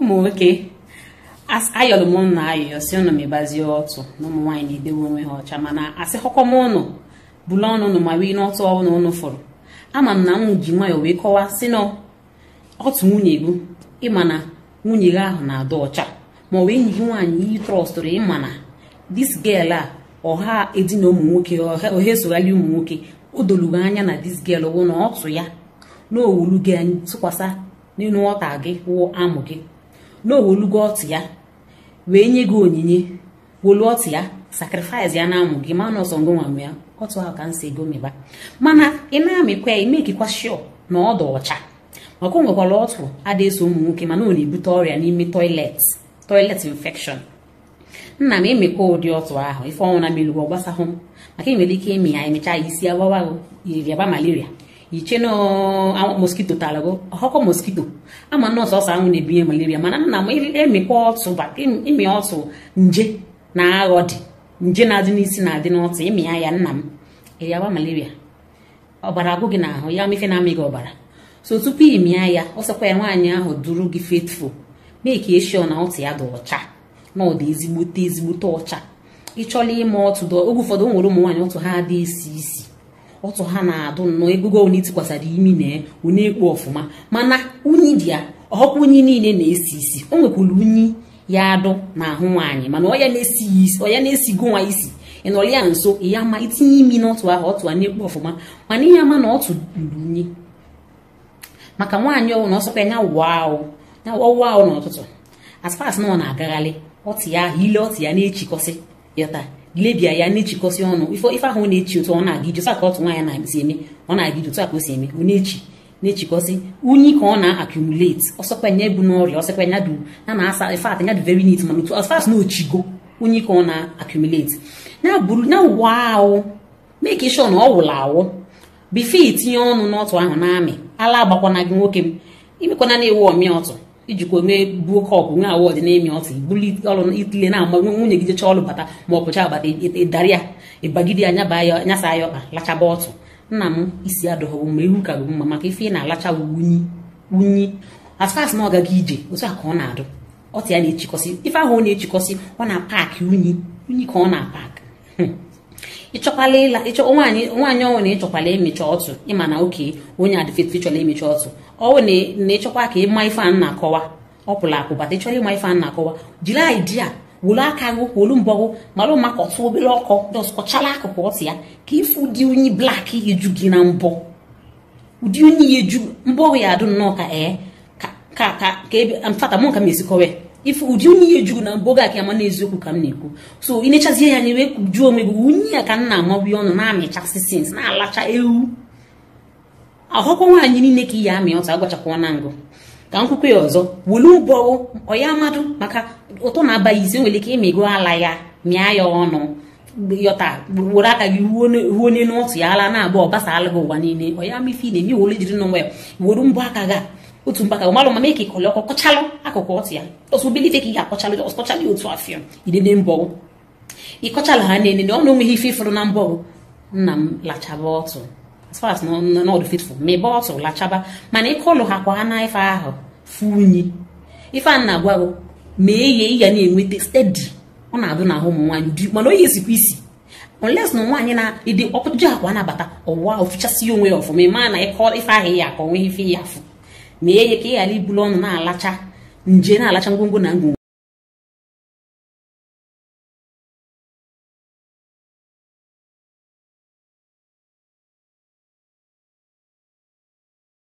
ụmụ nwoke ayọrọ m ụnụ ayọyọ si ụnụ mebazie ọtụ na ụmụ nwaanyị na-edewe onwe ha ọcha mana asị họkọm ụnụ bụla ọnụ ụnụ ma wee n'ọtụ ọnụ ụnụ fụrụ ama m na m ji nwayọọ wee kọwaa si na otu nwunye gị ịma na nwunye gị ahụ na-adị ọcha ma ọ wee enyi gị nwaanyị iyi trọstụrụ ịma na dis gel a ọha edina ụmụ nwoke ọha esogharị ụmụ nwoke o dolugo anya na dis gel wụ na ọtụ ya na owulu gị tụkwasị n'elu ọta gị wụ amụ gị na owolugo ọtụ ya wee nye gị onyinye wolu ọtụ ya sakrifis ya na-amụ gị ma na ọsọ ngụnwa ya ọtụ ahụ ka m si ego meba mana ị na-amịkwa ya imekikwa shọ na ọdụ ọcha maka o nwekwara ọtụ ada ụmụ nwoke mana ọ na-ebute ọrịa n'ime toilet toilet infection nna m emekwa ụdị ọtụ ahụ ife ọnwụ na mmiri gbasahụ m maka nwere ike ịmị ya emechaa ya isi agbawa malaria yicheno moskito talago ọkọ moskito ama na ọsọ anwụ na-ebinye malaria mana nna m emikwa ọtụ ịmị ọtụ nje na aghọ dị nje na-adị n'isi na-adị n'ọtụ ịmịa ya nna m ịrịaba malaria ọbara agụ gị n'ahụ ya mefe na-amị gị ọbara so tupu ịmịa ya ọsọkwa ya nwaanyị ahụ duru gị faithful mee ka eshio na ọtụ ya dị ọcha na ọ dị ezigbote ezigbote ọcha ịchọla ịma ọtụ oge ụfọdụ nwere ụmụ nwaanyị ọtụ ha adị isi isi ọtụ ha na-adụ nnọọ egogo onye tikwasara imi na onye ekpo ọfụma mana unyi dị ya ọkwa unyi niile na-esi isi o nwekwara unyi ya adụ ahụ nwaanyị mana ọya na-esigo nwa isi ịnọrọ ya nso e ya ma itinye e imi n'ọtụ ahụ ọtụ a na-ekpo ọfụma mana ihe ama na ọtụ luru unyi maka nwaanyị ọwụ na ọsọkwa ya ọwụwa ahụ n'ụtụtụ aspas na ọ na-agagharị ọtụ ya ahụ ile ọtụ ya na-echikọsị ịta lebia ya na-echikọsị ọnụ ife ahụ na-echi otu ọ na-aga ije saka otu nwaanyị na-esi eme ọ na-aga iji otu a ka o si eme ọ na-echi na-echikọsị unyi ka ọ na-accumulate ọsọkwanye bụ n'ọrịa ọsọkwanye dị a na-asa fat nya dị very neat mana otu fast na ochigo unyi ka ọ na-accumulate ya bụrụ na ụwa ahụ make sure na ọ wụrụ awụ bifo itinye ọnụ n'ọtụ ahụ na amị ala agbakwana gị nwoke m imekwana na-ewu ọmịa ọtụ ijikwa onwe buo kọpụ nwe awọdụ na ọtị ọtụ ibuli ọrụ itile na-ama nwunye gị jecha ọrụ bata ma ọ pụcha abata ịdarị ya ịbagide ya nyaba ya nyasa ya ọkpa lachaba ọtụ nna m isi adọghọbụ mma ihu ka bụ mma maka ife ị na-alacha wunyi wunyi asfas na ọ gị ije otu a ka ọ na-adụ ọtụ ya na-echikọsị ife ahụ ọ na-echikọsị ọ na-apaakị unyi unyi ka ọ na-apak ịchọkwala ịla ịchọ nwaanyị nwaanyị ọnwụ na ịchọkwala emecha ọtụ ịma na oke onye adịfet ịchọla emecha ọtụ ọnwụ na ịchọkwa ka ịma ife a na-akọwa ọpụla akụ bata ịchọla ịma ife a na-akọwa jiri aidia wolu aka gụ wolu mbọ gụ malụ maka ọtụ obere ọkọ dọskọchala akụkụ ọtụ ya ka ife ụdị onye blak eju gị na mbọ ụdị onye ya eju mbọ ya adụ nnọọ ka ee ka ka ka mfata mụ nka m esikọwe ife ụdị unyi ya juru na mboga aka ama n'eziokwu ka m na-ekwu so ị ya na ebe juo onwe gị unyi ya ka m na-amabi ọnụ na-amịchasị sins na-alacha ewu ahụkwa nwaanyị niile ka i ya amị ọtụ agwachakwa na ngụ ka nkwukwe ya ọzọ welu ụbọwụ ọya mmadụ maka ụtọ na-abaghị isi nwere ike ịmịgo ala ya mịa ya ọnụ yọta were aka gị ruo n'elu ọtụ ya ala na-abụ ọbasa alụghị ụwa niile ọya mife ị na-eme wole jiri n'onwe ya were mbọ aka gị otu mkpaka ụmalụ ma mee ka ịkọlị ọkọ kọchalụ akụkụ ọtụ ya ọsụ bilife ka ị ga-akọchalụ jọs kọchalụ ya otu afịọ idene mbọgụ ịkọchalụ ha na-ene na ọ na onweghị ife ịfụrụ na mbọ nna m lachaba ọtụ as far as n'ọdụ fitful ma ịba ọtụ lachaba mana ịkọlụ ha kwa ha na ife ahụ fụ unyi ife a na-agwa gụ mee ihe ị na-enweta stedi ọ na abụ na ụmụ nwaanyị dị mana onye ezikwa isi unless na nwaanyị na-ede ọkpụji akwa nabata ọwa ofichasị onwe ya ọfụma ị maa na ịkọ ife ahụ ya akọ nweghị ife ya afụ mee ya ka ị ghara ibulu ọnụ na-alacha nje na-alacha ngwongwo na ngwongwo